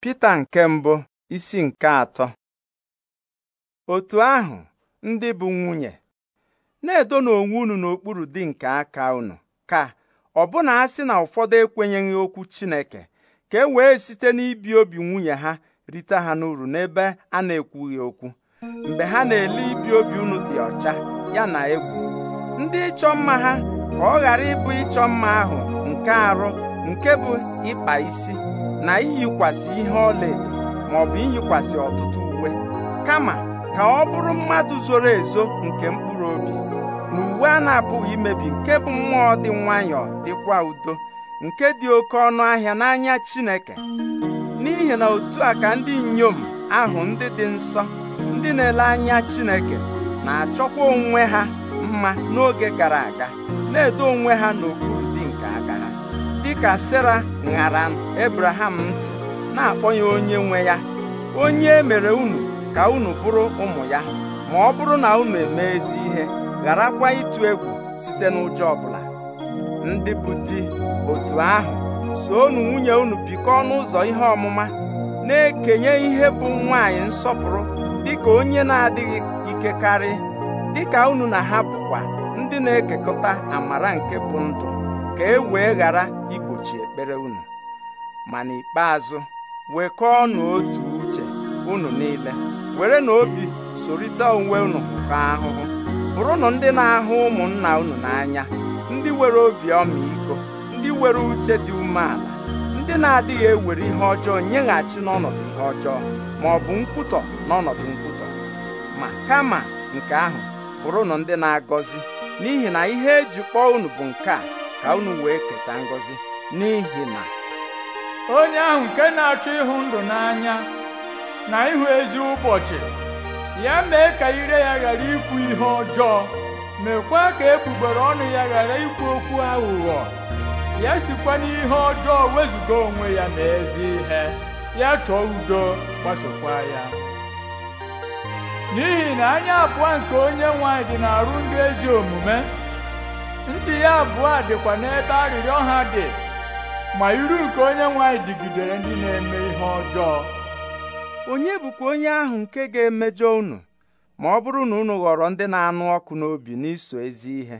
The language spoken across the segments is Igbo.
Pita nke mbụ isi nke atọ otu ahụ ndị bụ nwunye na-edona onwe unu n'okpuru di nke aka unu ka ọbụna a sị na ụfọdụ ekwenyeghị okwu Chineke ka e wee site n'ibi obi nwunye ha rite ha n'uru n'ebe a na-ekwughị okwu mgbe ha na-ele ibi obi unu dị ọcha ya egwu ndị ịchọ mma ha ka ọ ghara ịbụ ịchọ mma ahụ nke arụ nke bụ ịkpa isi na iyikwasị ihe ọlaedo bụ iyikwasị ọtụtụ uwe kama ka ọ bụrụ mmadụ zoro ezo nke mkpụrụ obi na uwe a na-apụghị imebi nke bụ mmụọ dị nwayọọ dịkwa udo nke dị oke ọnụ ahịa n'anya Chineke n'ihi na otu a ka ndị inyom ahụ ndị dị nsọ ndị na-ele anya Chineke na-achọkwa onwe ha mma n'oge gara aga na-edo onwe ha n'okpuru dịka sara ṅara Ebraham ntị na-akpọ ya onye nwe ya onye mere unu ka unu bụrụ ụmụ ya ma ọ bụrụ na unu eme ezi ihe gharakwa ịtụ egwu site n'ụjọ ọbụla ndị bụ di otu ahụ soonu nwunye unu bikọọ n'ụzọ ihe ọmụma na-ekenye ihe bụ nwaanyị nsọpụrụ dịka onye na-adịghị ikekarị dịka unu na ha bụkwa ndị na-ekekọta amara nke bụ ndụ ka e wee ghara igbochi ekpere unu ma n'ikpeazụ wekọọnụ otu uche unu niile were na obi sorịta onwe unu ka ahụhụ bụrụnụ ndị na-ahụ ụmụnna unu n'anya ndị were obi ọmịiko ndị were uche dị umeala ndị na-adịghị ewere ihe ọjọọ nyeghachi n'ọnọdụ ihe ọjọọ ma ọ bụ nkwutọ n'ọnọdụ nkwutọ ma kama nke ahụ bụrụnụ ndị na-agọzi n'ihi na ihe eji kpọọ unu bụ nke a ka unu wee keta ngọzi n'ihi na onye ahụ nke na-achọ ịhụ ndụ n'anya na ịhụ ezi ụbọchị ya mee ka ire ya ghara ikwu ihe ọjọọ mekwa ka egbugbere ọnụ ya ghara ikwu okwu aghụghọ ya sikwa n'ihe ọjọọ wezụga onwe ya ma ezi ihe ya chọọ udo gbasokwa ya n'ihi na anya abụọ nke onye nwanyị dị dị n'arụ ndị ezi omume ntị ya abụọ dịkwa n'ebe arịrịọ ha dị ma iru nke onye nwanyị dịgidere ndị na-eme ihe ọjọọ onye bụkwa onye ahụ nke ga-emejọ unu ma ọ bụrụ na unu ghọrọ ndị na-anụ ọkụ n'obi n'iso ezi ihe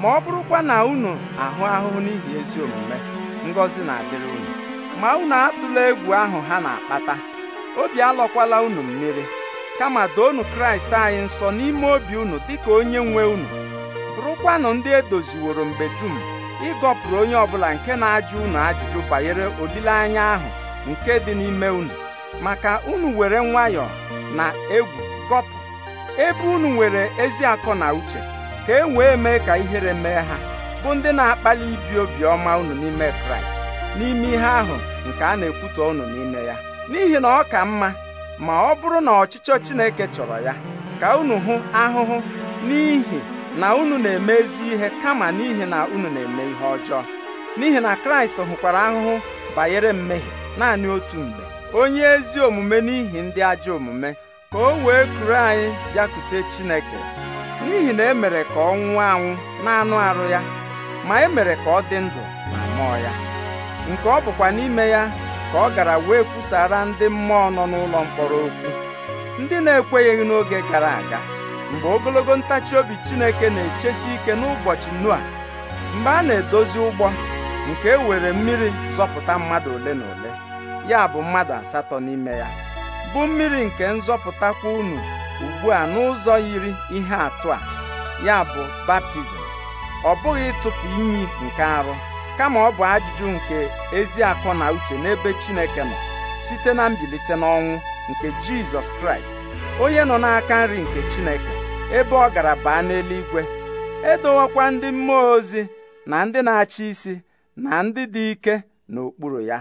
ma ọ bụrụkwa na unu ahụ ahụhụ n'ihi ezi omume ngọzi na-adịrị unu ma unu atụla egwu ahụ ha na-akpata obi alọkwala unu mmiri kama doonu Kraịst anyị nsọ n'ime obi unu dịka onye nwe unu rụkwanụ ndị edoziworo mgbe dum ịgọpụrụ onye ọbụla nke na-ajụ unu ajụjụ banyere olileanya ahụ nke dị n'ime unu maka unu were nwayọọ na egwu gọpụ ebe unu nwere ezi akọ na uche ka e wee mee ka ihere mee ha bụ ndị na-akpali ibi obiọma unu n'ime kraịst n'ime ihe ahụ nke a na-ekwutọ unu n'ime ya n'ihi na ọ ka mma ma ọ bụrụ na ọchịchọ chineke chọrọ ya ka unu hụ ahụhụ n'ihi na unu na-eme ezi ihe kama n'ihi na unu na-eme ihe ọjọọ n'ihi na kraịst hụkwara ahụhụ banyere mmehie naanị otu mgbe onye ezi omume n'ihi ndị ajọ omume ka o wee kuru anyị bịakute chineke n'ihi na emere ka ọ nwụọ anwụ na-anụ arụ ya ma emere ka ọ dị ndụ na mmụọ ya nke ọ bụkwa n'ime ya ka ọ gara wee kwusara ndị mmụọ nọ n'ụlọ mkpọrọ okwu ndị na-ekweghị n'oge gara aga mgbe ogologo ntachi obi Chineke na-echesi ike n'ụbọchị Noa mgbe a na-edozi ụgbọ nke e were mmiri zọpụta mmadụ ole na ole ya bụ mmadụ asatọ n'ime ya bụ mmiri nke nzọpụtakwa unu ugbu a n'ụzọ yiri ihe atụ a ya bụ baptizim ọ bụghị ịtụpụ inyi nke arụ kama ọ bụ ajụjụ nke ezi akọ na uche n'ebe Chineke nọ site na mbilite n'ọnwụ nke Jizọs Kraịst onye nọ n'aka nri nke Chineke ebe ọ gara baa n'eluigwe edowekwa ndị mmụọ ozi na ndị na-achị isi na ndị dị ike n'okpuru ya